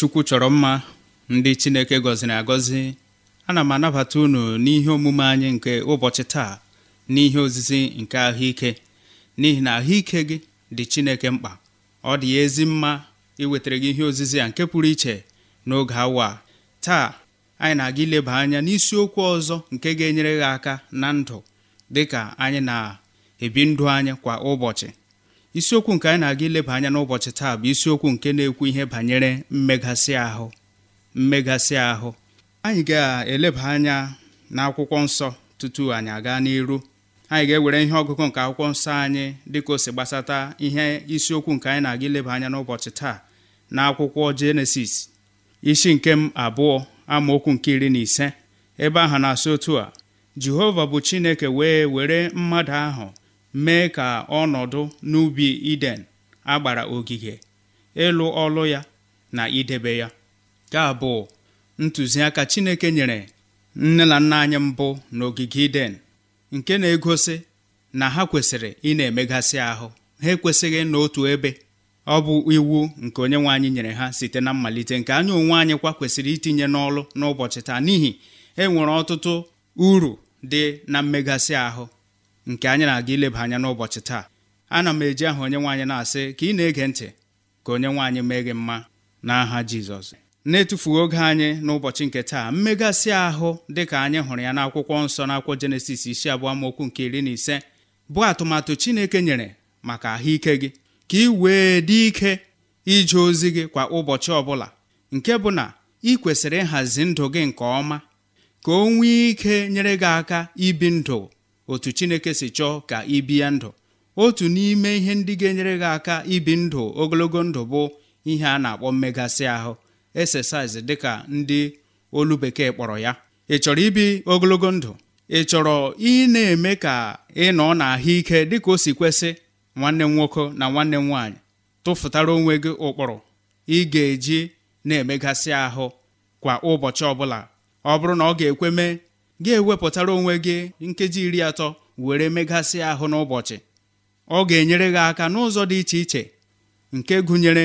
chukwu chọrọ mma ndị chineke gọziri agọzi ana m anabata unu n'ihe omume anyị nke ụbọchị taa n'ihe ozizi nke ahụike n'ihi na ahụike gị dị chineke mkpa ọ dị ya ezi mma iwetara gị ihe ozizi a nke pụrụ iche n'oge awa taa anyị na-aga ileba anya n'isiokwu ọzọ nke ga-enyere gị aka na ndụ dịka anyị na-ebi ndụ anyị kwa ụbọchị isiokwu nke anyị na-aga ileba anya n'ụbọchị taa bụ isiokwu nke na-ekwu ihe banyere mmegasị ahụ mmegasị ahụ anyị ga-eleba anya n'akwụkwọ nsọ tutu anyị aga n'iru anyị ga-ewere ihe ọgụgụ nke akwụkwọ nsọ anyị dịka o si gbasata ihe isiokwu nke anyị na-aga ileba anya n'ụbọchị taa na akwụkwọ jenesis isi nke m abụọ amaokwu nke iri na ise ebe ahụ na-asị otu a jehova bụ chineke wee were mmadụ ahụ mee ka ọnọdụ n'ubi Iden agbara ogige ịlụ ọlụ ya na idebe ya ka bụ ntụziaka Chineke nyere nne na nna anyị mbụ n'ogige Iden nke na-egosi na ha kwesịrị ị na-emegasị ahụ ha ekwesịghị n'otu ebe ọ bụ iwu nke onye nwe anyị nyere ha site na mmalite nke anyị onwe anyị kwa kwesịrị itinye n'ọlụ n'ụbọchị taa n'ihi enwere ọtụtụ uru dị na mmegasị ahụ nke anyị na-aga ileba anya n'ụbọchị taa ana m eji aha onye nwaanyị na-asị ka ị na-ege ntị ka onye nwaanyị mee gị mma n'aha Jizọs na-etufughị oge anyị n'ụbọchị nke taa mmegasị ahụ dịka anyị hụrụ ya n'akwụkwọ nsọ n'akwụkwọ Jenesis isi abụọ amaokwu nke iri na ise bụ atụmatụ Chineke nyere maka ahụike gị ka ị wee dị ike ije ozi gị kwa ụbọchị ọbụla nke bụ na ị kwesịrị ịhazi ndụ gị nke ọma ka o nwee ike nyere gị aka ibi ndụ otu chineke si chọọ ka ị bie ndụ otu n'ime ihe ndị ga-enyere gị aka ibi ndụ ogologo ndụ bụ ihe a na-akpọ mmegasị ahụ exercise dịka ndị olu bekee kpọrọ ya ị chọrọ ibi ogologo ndụ ị chọrọ ị na-eme ka ị nọ n'ahụike dịka o si kwesị nwanne m nwoke na nwanne m nwaanyị tụfụtara onwe gị ụkpụrụ ị ga-eji na-emegasị ahụ kwa ụbọchị ọbụla ọ bụrụ na ọ ga-ekwe mee gị ewepụtara onwe gị nkeji iri atọ were megasị ahụ n'ụbọchị ọ ga-enyere gị aka n'ụzọ dị iche iche nke gụnyere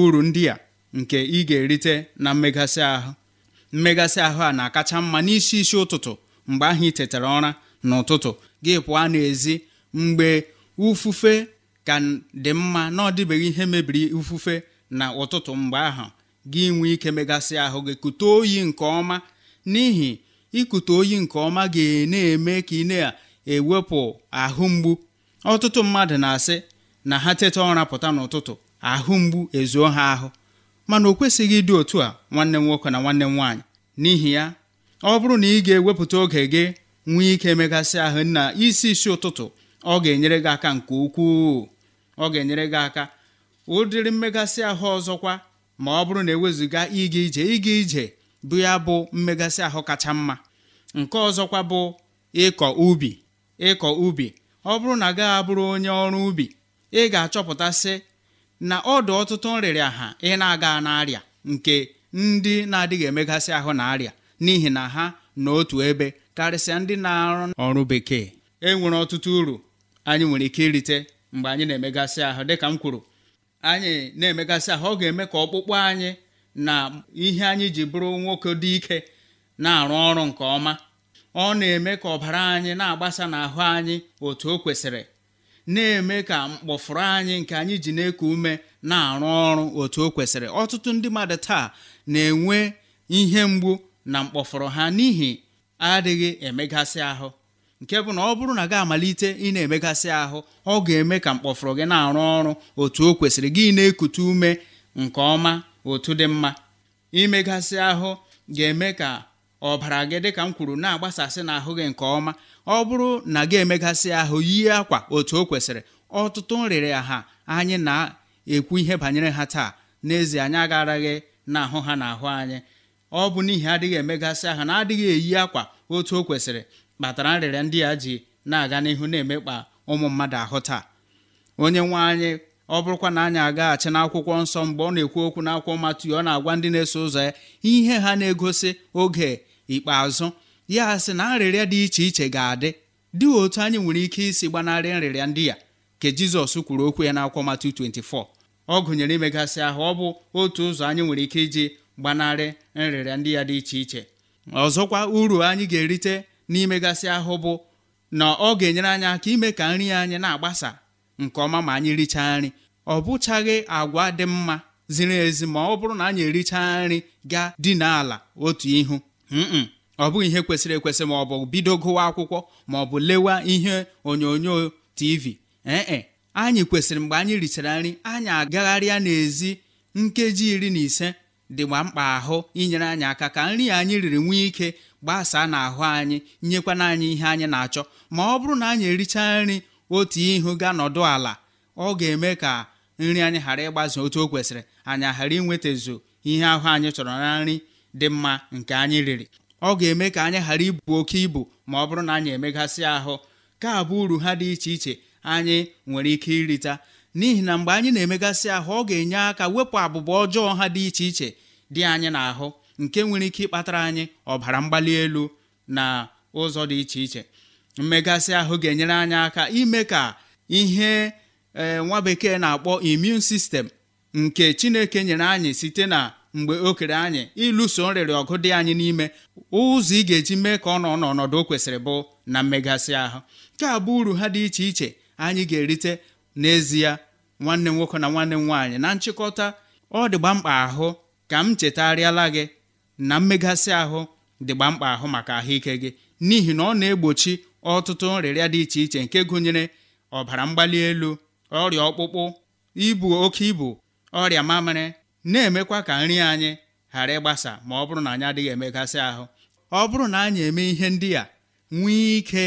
uru ndị a nke ị ga-erite na mmegasị ahụ mmegasị ahụ a na-akacha mma n'isi isi ụtụtụ mgbe ahụ ị tetara ụra n'ụtụtụ gị pụọ n'ezi mgbe ufufe ka dị mma na ọ dịbeghị ihe mebiri ufufe na ụtụtụ mgbe ahụ gị nwee ike megasị ahụ gị kute oyi nke ọma n'ihi ikute oyi nke ọma ga-na-eme ka ị na-ewepụ ahụ mgbu ọtụtụ mmadụ na-asị na ha teta ụra pụta n'ụtụtụ ahụ mgbu ezuo ha ahụ mana o kwesịghị ịdị otu a nwanne m nwoke na nwanne m nwaanyị n'ihi ya ọ bụrụ na ị ga-ewepụta oge gị nwee ike megasị ahụ na isi isi ụtụtụ ọ ga-enyere gị aka nke ukwuu ọ ga-enyere gị aka ụdịrị mmegasị ahụ ọzọkwa ma ọ bụrụ na ewezuga ịga ije ịga ije bụ ya bụ mmegasị ahụ kacha mma nke ọzọkwa bụ ịkọ ubi ịkọ ubi ọ bụrụ na gaghị abụrụ onye ọrụ ubi ị ga-achọpụtasị na ọdụ ọtụtụ nrịrịa ha ị na-aga n'arịa nke ndị na-adịghị emegasị ahụ na arịa n'ihi na ha n'otu ebe karịsịa ndị na-arụ ọrụ bekee e nwere ọtụtụ uru anyị nwere ike irite mgbe anyị na-emegasị ahụ dịka m kwuru anyị na-emegasị ahụ ọ ga-eme ka ọkpụkpụ anyị na ihe anyị ji bụrụ nwoke dị ike na-arụ ọrụ nke ọma ọ na-eme ka ọbara anyị na-agbasa n'ahụ anyị otu o kwesịrị na-eme ka mkpọfụrụ anyị nke anyị ji na-eku ume na-arụ ọrụ otu o kwesịrị ọtụtụ ndị mmadụ taa na-enwe ihe mgbu na mkpọfụrụ ha n'ihi adịghị emegasị ahụ nke bụ na ọ bụrụ na gị amalite ị na-emegasị ahụ ọ ga-eme ka mkpọfụrụ gị na-arụ ọrụ otu o kwesịrị gị na-ekute ume nke ọma otu dị mma imegasị ahụ ga-eme ka ọbara gị dị ka m kwuru na-agbasasị na ahụ gị nke ọma ọ bụrụ na gị emegasị ahụ yie akwa otu o kwesịrị ọtụtụ nrịrị ha anyị na-ekwu ihe banyere ha taa n'ezie anyị agaraghị na ahụ ha na ahụ anyị ọ bụ n'ihi adịghị emegasị ahụ na adịghị eyi akwa otu o kwesịrị kpatara nrịrịa ndị a ji na-aga n'ihu na-emekpa ụmụ mmadụ ahụ taa onye nwe anyị ọ bụrụkwa na anyị agaghachi n'akwụkwọ nsọ mgbe ọ na-ekwu okwu n'akwụkwọ Matiu ọ na-agwa ndị na-eso ụzọ ya ihe ha na-egosi oge ikpeazụ ya sị na nrịrịa dị iche iche ga-adị dị otu anyị nwere ike isi gbanarị nrịrịa ndị ya ka Jizọs kwuru okwu ya n'akwụkwọ Matiu 24 ọ gụnyere imegasị ahụ ọ bụ otu ụzọ anyị nwere ike iji gbanarị nrịrịa ndị ya dị iche iche ọzọkwa uru anyị ga-erite n'imegasị ahụ bụ na ọ ga-enyere anyị aka ime ka nri anyị na-agbasa nke ọma ma anyị richaa nri ọ bụchaghị agwa dị mma ziri ezi ma ọ bụrụ na anyị ericha nri gaa dị n'ala otu ihu ọ bụghị ihe kwesịrị ekwesị ma ọ bụ bido gụwa akwụkwọ ma ọ bụ lewa ihe onyonyo tv ee anyị kwesịrị mgbe anyị richara nri anyị agagharịa n'ezi nkeji iri na ise dịgba mkpa ahụ inyere anyị aka ka nri anyị riri nwee ike gbasaa n'ahụ anyị nyekwana anyị ihe anyị na-achọ ma ọ bụrụ na anyị ericha nri otu ihu ga nọdụ ala ọ ga-eme ka nri anyị ghara ịgbaze otu o kwesịrị anyị ghara inwetazu ihe ahụ anyị chọrọ na nri dị mma nke anyị riri ọ ga-eme ka anyị ghara ibu oke ibu ma ọ bụrụ na anyị emegasị ahụ ka abụ uru ha dị iche iche anyị nwere ike irita n'ihi na mgbe anyị na-emegasị ahụ ọ ga-enye aka wepụ abụba ọjọọ ha dị iche iche dị anyị n'ahụ nke nwere ike ịkpatara anyị ọbara mgbali elu na ụzọ dị iche iche mmegasị ahụ ga-enyere anyị aka ime ka ihe ee eh, nwa bekee na-akpọ immune sistem nke chineke nyere anyị site na mgbe o kere anyị ịlụso nrịrị ọgụ dị anyị n'ime ụzọ ị ga-eji mee ka ọ nọ n'ọnọdụ o kwesịrị bụ na mmegasị ahụ nke a bụ uru ha dị iche iche anyị ga-erite n'ezie nwanne nwoke na nwanne m nwaanyị na nchịkọta ọ dịgba mkpa ahụ ka m chetarịala gị na mmegasị ahụ dịgba mkpa ahụ maka ahụike gị n'ihi na ọ na-egbochi ọtụtụ nrịrịa dị iche iche nke gụnyere ọbara mgbali elu ọrịa ọkpụkpụ ibu oke ibu ọrịa mamịrị na-emekwa ka nri anyị ghara ịgbasa ma ọ bụrụ na anyị adịghị emegasị ahụ ọ bụrụ na anyị eme ihe ndị a nwee ike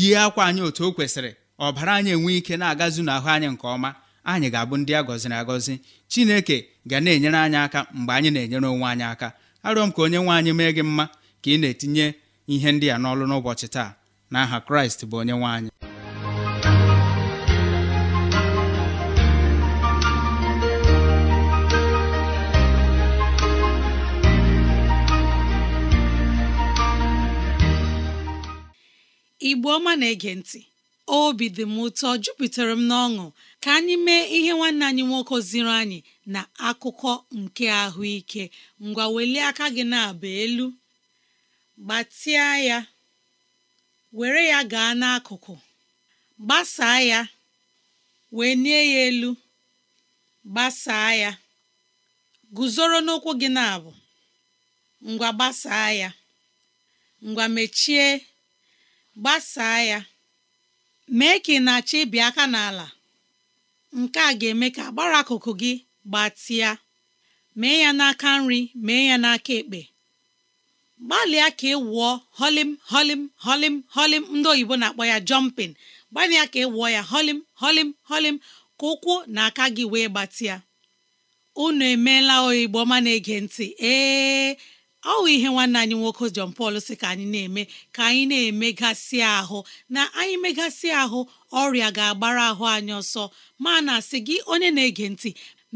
yie akwa anyị otu o kwesịrị ọbara anyị enwee ike na-agazu n'ahụ anyị nke ọma anyị ga-abụ ndị a gọziri agọzi chineke ga na-enyere anyị aka mgbe anyị na-enyere onwe anyị aka arịọ m ka onye nwe anyị mee gị mma ka ị na-etinye ihe ndị a n'ọlụ n'ụbọchị taa Na aha kraịst bụ onye nwe anyị igbo ọma na-ege ntị obi dị m ụtọ jupụtara m n'ọṅụ ka anyị mee ihe nwanne anyị nwoke ziri anyị na akụkọ nke ahụike ngwa welie aka gị na-aba elu gbatịa ya were ya gaa n'akụkụ gbasaa ya wee nie ya elu gbasaa ya guzoro n'ụkwụ gị na-abụ ngwa gbasaa ya ngwa mechie gbasaa ya mee ka ị na-achọ ịbị aka n'ala nke a ga-eme ka agbara akụkụ gị gbatịa mee ya n'aka nri mee ya n'aka ekpe gbalịa ka ị wụọ holim holim holim holim ndị oyibo na-akpọ ya jọmpin gbalịa ka ị wụọ ya holim holim holim ka ụkwụ na aka gị wee gbatịa unu emeela oyibo ma na-ege ntị ee ọ wụ ihe nwanne anyị nwoke John Paul ka anyị na-eme ka anyị na-emegasị ahụ na anyị megasị ahụ ọrịa ga-agbara ahụ anyị ọsọ ma na asị gị onye na-ege ntị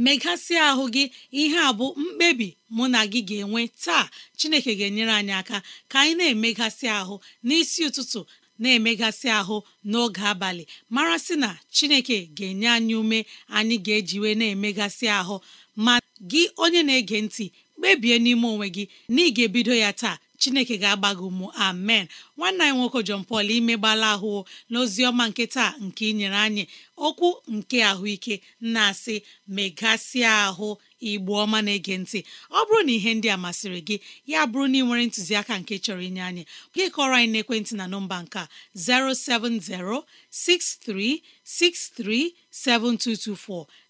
megasị ahụ gị ihe a bụ mkpebi mụ na gị ga-enwe taa Chineke ga-enyere anyị aka ka anyị na-emegasị ahụ n'isi ụtụtụ na-emegasị ahụ n'oge abalị mara sị na Chineke ga-enye anyị ume anyị ga-ejiwe na-emegasị ahụ ma gị onye na-ege ntị kpebie n'ime onwe gị na ị ga-ebido ya taa chineke ga-agba gị ụmụ amen nwanne anyị nwoke jọn Paul imegbala ahụ n'ozi ọma nke taa nke inyere anyị okwu nke ahụike na-asị megasịa ahụ igbo ọma na-ege ntị ọ bụrụ na ihe ndị a masịrị gị ya bụrụ na ị nwere ntụziaka nke chọrọ inye anyị gị kọrọ anyị n'ekwentị na nọmba nke 07063637224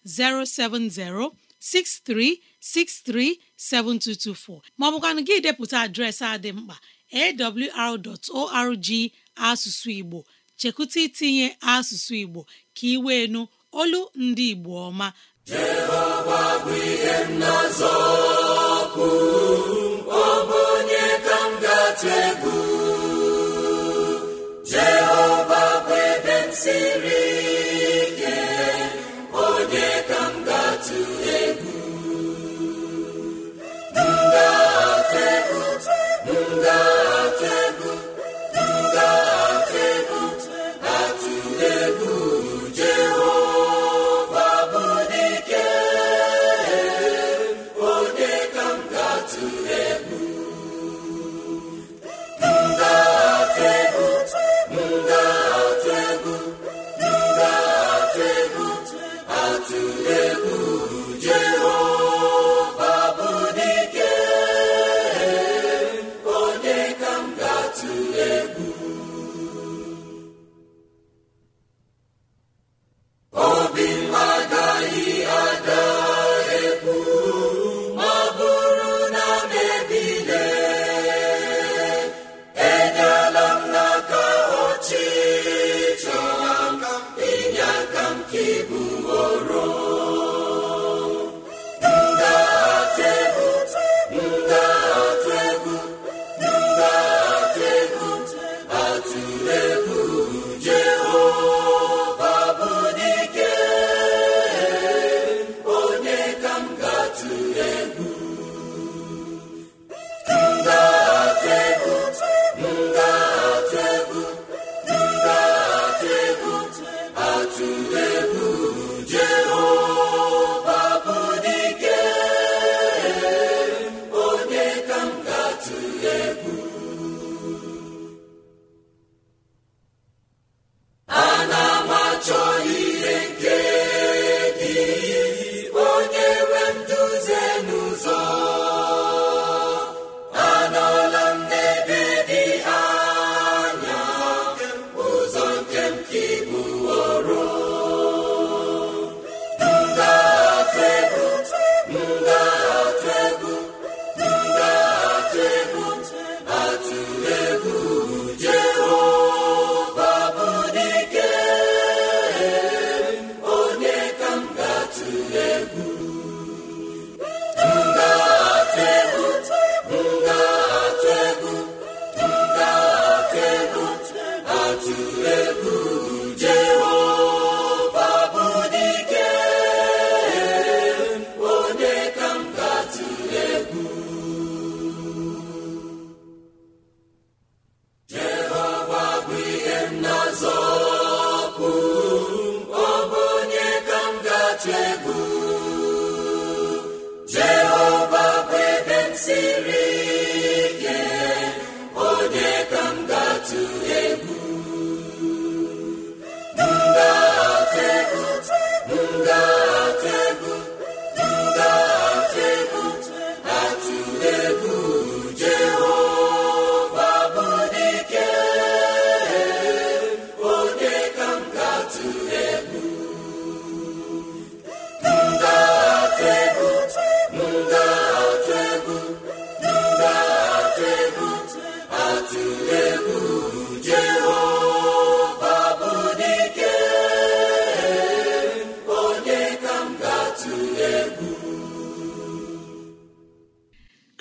070 63637224 maọbụkwanụ gị depụta adreesị a dị mkpa awr.org asụsụ Igbo chekwụta itinye asụsụ Igbo ka ị wee olu ndị Igbo ọma onye ka m atụ egwu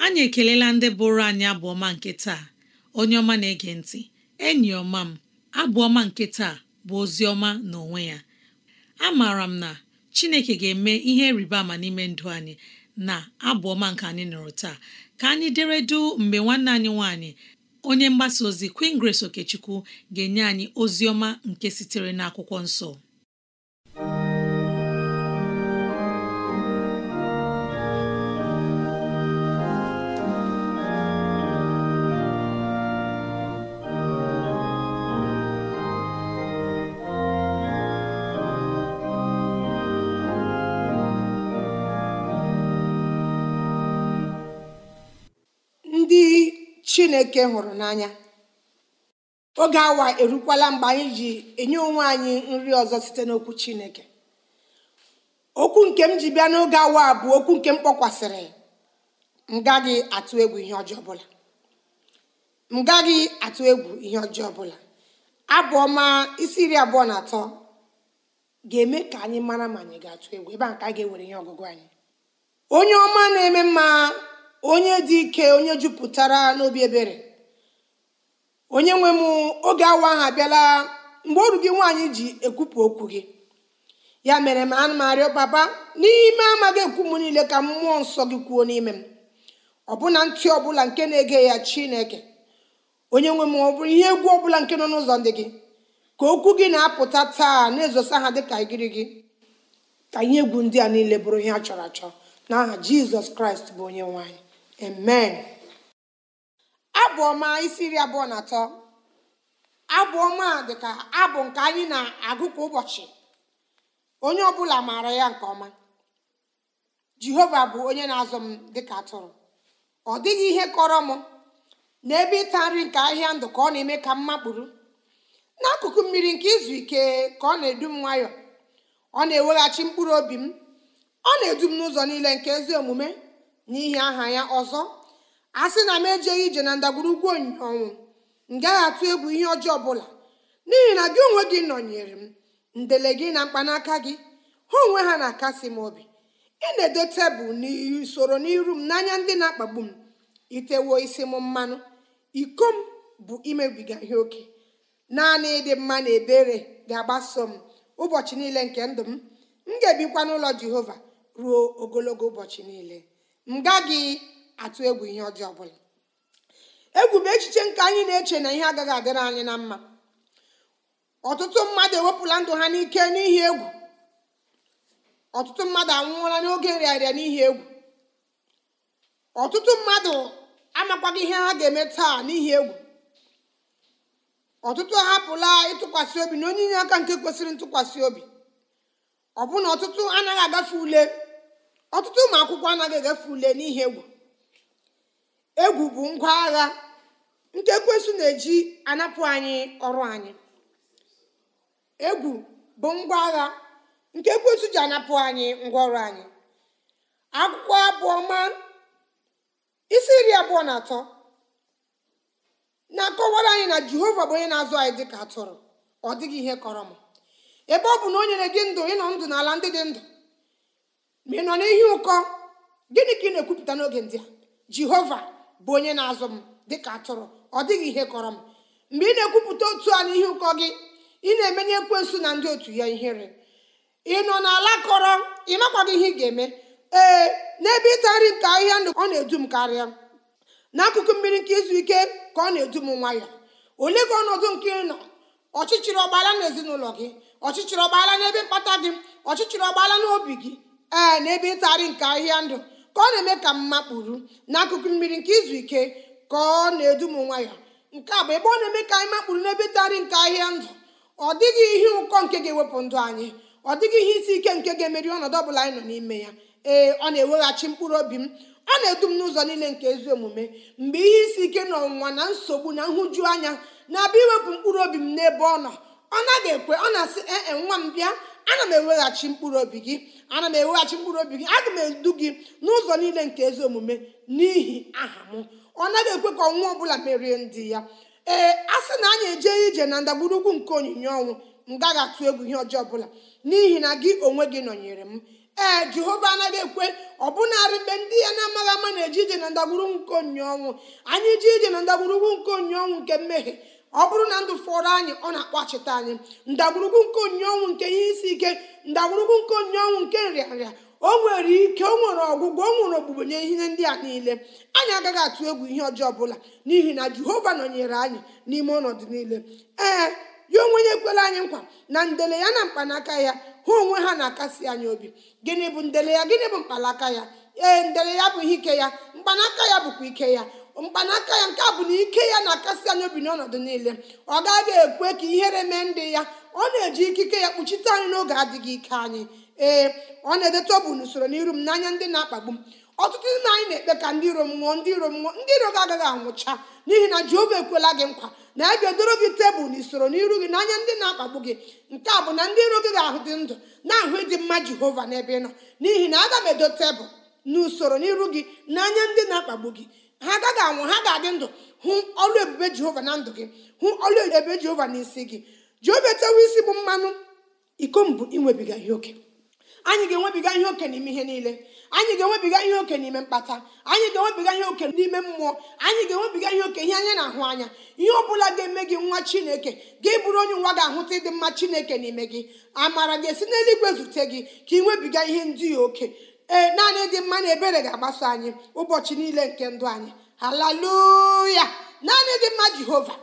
anyị ekelela ndị bụrụ anyị abụọma nke taa onye ọma na-ege ntị enyi ọma m abụọma nke taa bụ ozi ọma n'onwe ya A maara m na Chineke ga-eme ihe rịba ama n'ime ndụ anyị na abụọma nke anyị nụrụ taa ka anyị deredu mgbe nwanne anyị nwanyị onye mgbasa ozi Queen Grace Okechukwu ga-enye anyị ozi ọma nke sitere n'akwụkwọ nsọ chineke hụrụ n'anya oge awa erukwala mgbe anyị ji enye onwe anyị nri ọzọ site n'okwu chineke okwu nke m ji bịa n'oge awa bụ okwu nke m kpọkwasịrị m gaghị atụ egwu ihe ọjọọ ọbụla m gaghị atụ egwu ihe ọjọọ ọbụla abụ isi iri abụọ na atọ ga-eme ka anyị mara ma anyị ga-atụ egwu ebe a ka a ga-ewere ihe ọgụgụ anyị onye ọma na-eme mma onye dị ike onye jupụtara n'obi ebere onye nwe m oge awa ahụ abịala mgbe ọrụ gị nwaanyị ji ekwupụ okwu gị ya mere m anụ m arịọ papa n'ime amaghị ekwu m niile ka mmụọ nsọ gị kwuo n'ime m ọbụna ntị ọbụla nke na-ege ya chineke onye nwe m ọ bụrụ ihe egwu ọbụla nke nọ n'ụzọ ndị gị ka okwu gị na-apụta taa na-ezosa ha dịka igiri gị ka ihe egwu ndị a niile bụrụ ihe a chọrọ achọ n'aha jizọs kraịst bụ onye nwaanyị amen abụ ọma isi iri abụọ na atọ abụ ọma dịka abụ nke anyị na-agụ kwa ụbọchị onye ọbụla maara ya nke ọma jehova bụ onye na-azụ m dịka atụrụ ọ dịghị ihe kọrọ m n'ebe ịta nri nke ahịa ndụ ka ọ na-eme ka m makpụrụ n'akụkụ mmiri nke izu ike ka ọ na-edu m nwayọọ ọ na-eweghachi mkpụrụ obi m ọ na-edu m n'ụzọ niile nke ezi omume n'ihi aha ya ọzọ a sị na m ejeghị ije na ndagwurugwu ọnwụ m gaghị atụ egwu ihe ọjọọ ọbụla n'ihi na gị onwe gị nọnyere m ndele gị na mkpanaka gị ha onwe ha na-akasi m obi ị na-edo tebụl n'usoro n'iru m n'anya ndị na-akpagbu m itewo isi m mmanụ iko m bụ imebiga ihe oke naanị ịdị mma na ebere ga-agbaso m ụbọchị niile nke ndụ m m ga-ebikwa n'ụlọ jehova ruo ogologo ụbọchị niile m gaghị atụ egwu ihe ọjọọ ọbụla egwu bụ echiche nke anyị na-eche na ihe agaghị adịrị anyị na mma ọtụtụ mmadụ ewepụla ndụ ha n'ike n'ihi egwu ọtụtụ mmadụ anwụọla n'oge nrịarịa n'ihi egwu ọtụtụ mmadụ amakwaghị ihe ha ga-eme taa n'ihi egwu ọtụtụ ahapụla ịtụkwasị obi na onye inye aka nke kwesịrị ntụkwasị obi ọbụna ọtụtụ anaghị agafe ule ọtụtụ ụmụ akwụkwọ anaghị egafe ule n'ihe egwu egwu bụ ngwa agha nke ekwensu na-eji anapụ anyị ọrụ anyị egwu bụ ngwa ji anapụ anyị ngwa ọrụ anyị akwụkwọ isi nri abụọ na atọ na-akọwara anyị na jehova bụ onye na-azụ anyị dịka atụrụ ọ dịghị ihe kọrọ m ebe ọ bụ na o nyere gị ndụ ịnọ ndụ n'ala ndị dị ndụ ma ị nọ n'ihi ụkọ gịnị ka ị na-ekwupụta n'oge ndị a jehova bụ onye na-azụ m dịka atụrụ ọ dịghị ihe kọrọ m mgbe ị na-ekwupụta otu a n'ihi ụkọ gị ị na-emenye ekwensu na ndị otu ya ihere ị nọ n'ala kọrọ ị makwaghị ihe ị ga-eme ee n'ebe ịta nri nke ahịhịa ndụ ọ na-edu m karịa n'akụkụ mmiri nke izu ike ka ọ na-edu m nwa ya olee gị ọnọdụ nke ị nọ ọchịchịrị ọgbaala na ezinụlọ gị ọchịchịrị ọgbaala n'ebe mkpata gị ọchịchịrị ọgbaala n'obi gị ee n'ebe ịtagharị nke ahịa ndụ ka ọ na-eme ka mma kpuru n'akụkụ mmiri nke izu ike ka ọ na-edu m nwa ya nke a bụ ebe ọ na-eme ka anyị makpuru n'ebe ịtagharị nke ahịa ndụ ọ dịghị ihe ụkọ nke ga-ewepụ ndụ anyị ọ dịghị ihe isi ike nke ga-emeri ọnọdụ ọbụla anyị nọ n'ime ya ee ọ na-eweghachi mkpụrụ obi m ọ na-edu m n'ụzọ niile nke ezi omume mgbe ihe isi ike na ọnwụnwa na nsogbu na nhụju anya na-abịa iwepụ mkpụrụ obi m n'ebe ọ nọ ọ naghị ekwe ọ na-asị ee nwa m bịa ana m eweghachi mkpụrụ obi gị ana m eweghachi mkpụrụ obi gị aga m edu gị n'ụzọ niile nke ezi omume n'ihi aha m ọ naghị ekwe ka ọnwa ọbụla merie ndị ya ee a sị na anyị eje ije na ndagburugwu nke onyinye ọnwụ m gaghị atụ egwu ihe ọjọọ ọbụla n'ihi na gị onwe gị nọnyere m ee jehova anaghị ekwe ọbụnarị mgbe ndị ya na-amaghị ama na-eje ije na ndagburugwu nke onyinye ọnwụ anyị ije ije na ndagburugwu nke onyinye ọnwụ nke mmehie ọ bụrụ na ndụ fọrọ anyị ọ na achịta anyị ndagwurugwu nke onye ọnwụ nke ihe isi ike ndagwurugwu nke onye ọnwụ nke nrịanrịa o nwere ike o nwere ọgwụgwọ o nwere ogbugbo nye ihe ndị a niile anyị agaghị atụ egwu ihe ọjọọ ọbụla n'ihi na jehova nọnyere anyị n'ime ọnọdụ niile ee ya onwe ya ekwela anyị nkwa na ndele ya na mkpanaka ya ha onwe ha na-akasi anyị obi gịnị bụ ndele ya gịnị bụ mkpanaka ya ee ndele ya bụ ihe ike ya mkpanaka ya bụkwa ike ya mkpanaka ya nke a bụ na ike ya na-akasị anyị obi n'ọnọdụ niile ọ gaghị ekwe ka ihere mee ndị ya ọ na-eji ikike ya kpuchite anyị n'oge adịghị ike anyị ee ọ na edote ọ bụ n'usoro n'iru m n'anya ndị na-akpagbu m ọtụtụ ndị anyị na-ekpe ka ndị iro m nwụọ ndị iro m nwụọ ndị iro gị agaghị anwụcha n'ihi na jehova ekwela gị nkwa na ya ga-edoro gị tebụl n'usoro n'iru gị n'anya ndị na-akpagbu gị nke a bụ na ndị iro gị ga-ahụ dị ndụ na-ahụ ịdị mma jehova n'ebe ị nọ n'ihi na aga m edo tebụl n'usoro n'iru gị n'anya ndị na-akpagbu gị ha agaghị anwụ ha ga-adị ndụ hụ ọlụ ebube jehova na ndụ gị hụ ọlụ ebube jehova na isi gị jehova etewe isi bụ mmanụ iko mbụ inwebiga ihe oke anyị ga-enwebiga ihe oke n'ime ihe niile anyị ga-enwebiga ihe oke n'ime mkpata anyị ga-enwebiga ihe oke n'ime mmụọ anyị ga-enwebiga ihe oke ihe anya na-ahụ anya ihe ọ bụla ga-eme gị nwa chineke gị bụrụ onye nwa ga-ahụta ịdị mma chineke n'ime gị amara ga-esi n'eluigwe zute gị ka ị nwebiga ihe ndị oke ee eh, naanị dị mma na ebere ga-agbaso anyị ụbọchị niile nke ndụ anyị haleluya naanị dị mma jehova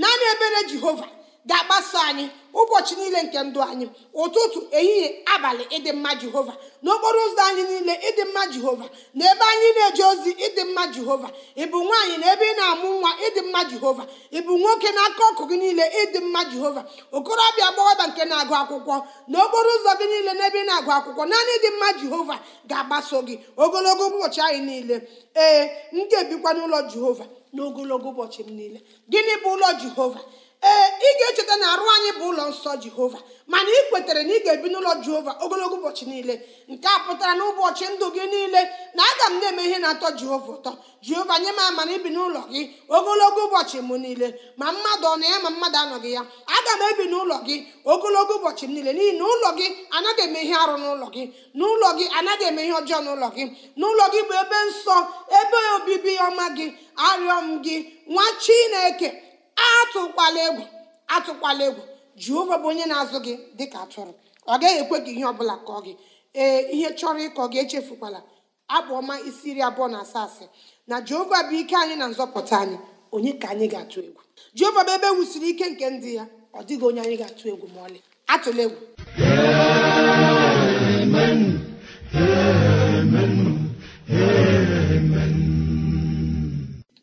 naanị ebere jehova ga-agbaso anyị ụbọchị niile nke ndụ anyị ụtụtụ ehihie abalị ịdị mma jehova n'okporo ụzọ anyị niile ịdị mma jehova na ebe anyị na-eje ozi ịdị mma jehova ịbụ nwaanyị na ebe ị na-amụ nwa ịdị mma jehova ịbụ nwoke na aka ọkụ gị niile ịdị mma jehova okorobịa agbọghọbịa nke na-agụ akwụkwọ n'okporo ụzọ gị niile ebe ị na-agụ akwụkwọ naanị ịdị mma jehova ga-agbaso gị ogologo ụbọchị anyị niile ee m ga-ebikwa n'ụlọ jehova n'ogologo ụbọchị m niile gịnị bụ ụlọ jehova ee ị ga-echeta na arụ anyị bụ ụlọ nsọ jehova mana ị kwetere na ị ga-ebi n'ụlọ jehova ogologo ụbọchị niile nke a pụtara na ụbọchị ndụ gị niile na aga m na-eme ihe na-atọ jehova ụtọ jehova nye m ama na ibi n'ụlọ gị ogologo ụbọchị m niile ma mmadụ ọ na ya ma mmadụ anọghị ya aga m ebi n'ụlọ gị ogologo ụbọchị m niile n'ihi na ụlọ gị anaghị eme ihe arụ n'ụlọ gị n'ụlọ gị anaghị eme ihe ọjọọ n'ụlọ gị n'ụlọ gị bụ ebe nsọ ebe obibi ọma gị arịọ m gị nwa chineke atụkwala egwu atụkwala egwu jehova bụ onye na-azụ gị dịka atụrụ ọ gaghị ekwe gị ihe ọbụla kọọ gị ee ihe chọrọ ịkọ gị echefukwala abụ ọma isi iri abụọ na asaa asị na jehova bụ ike anyị na nzọpụta anyị onye ka anyị ga-atụ egwu jehova bụ ebe e wusiri ike nke ndị ya ọ dịghị onye anyị ga-atụ egwu ma ọlị atụla egwu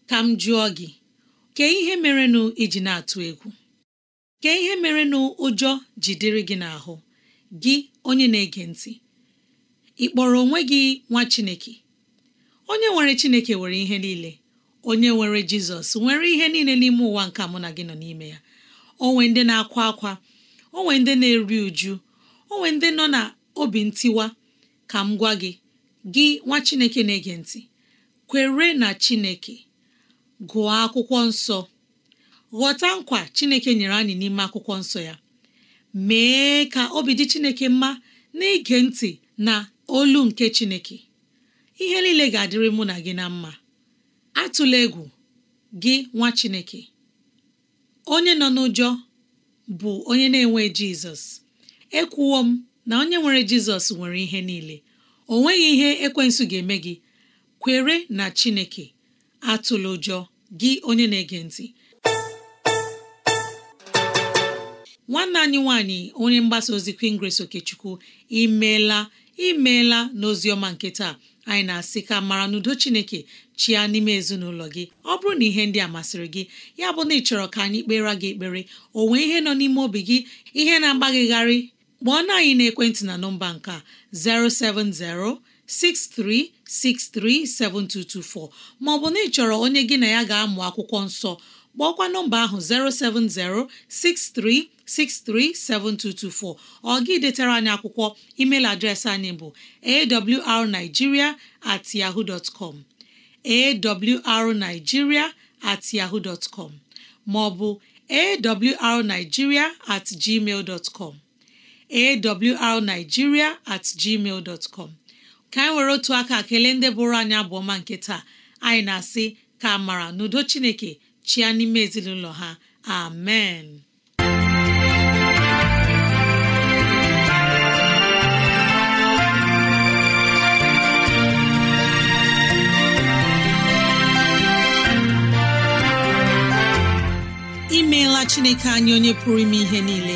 ka m jụọ gị kee ihe merenụ iji na-atụ egwu kee ihe merenụ ụjọ jidere gị n'ahụ gị onye na-ege ntị ị kpọrọ onwe gị nwa Chineke onye nwere Chineke nwere ihe niile onye nwere Jizọs nwere ihe niile n'ime ụwa nke mụ na gị nọ n'ime ya onwe ndị na-akwa akwa onwe ndị na-eri uju onwe ndị nọ na obi ntiwa ka m gwa gị gị nwa Chineke na-ege ntị kwere na Chineke gụọ akwụkwọ nsọ ghọta nkwa Chineke nyere anyị n'ime akwụkwọ nsọ ya mee ka obi dị Chineke mma n'ige ntị na olu nke Chineke ihe niile ga-adịrị mụ na gị na mma atụla egwu gị nwa Chineke onye nọ n'ụjọ bụ onye na-enwe Jizọs ekwuwo m na onye nwere Jizọs nwere ihe niile o nweghị ihe ekwensu ga-eme gị kwere na Chineke atụla ụjọ gị onye na-ege ntị nwanne anyị nwanyị onye mgbasa ozi Queen Grace Okechukwu imeela imeela n'oziọma nke taa anyị na-asị ka mara n'udo Chineke chia n'ime ezinụlọ gị ọ bụrụ na ihe ndị a masịrị gị ya bụ na ị chọrọ ka anyị kpere gị ekpere o nwee ihe nọ n'ime obi gị ihe na-agbaghịgharị kpọọ na anyị na ekwentị na nọmba nke a 070 ọ maọbụ na ị chọrọ onye gị na ya ga-amụ akwụkwọ nsọ kpọọkwa nọmba ahụ 7224. ọ gị detara anyị akwụkwọ email adreesị anyị bụ awrnigeria at yahoo dot com awrnigeria at yahoo dot com maọbụ awrnigeria at gmail dot com awrnigeria at gmail dot com ka anyị were otu aka kelee ndị bụrụ anyị abụọma nke taa anyị na-asị ka amara n'udo chineke chịa n'ime ezinụlọ ha amen imeela chineke anyị onye pụrụ ime ihe niile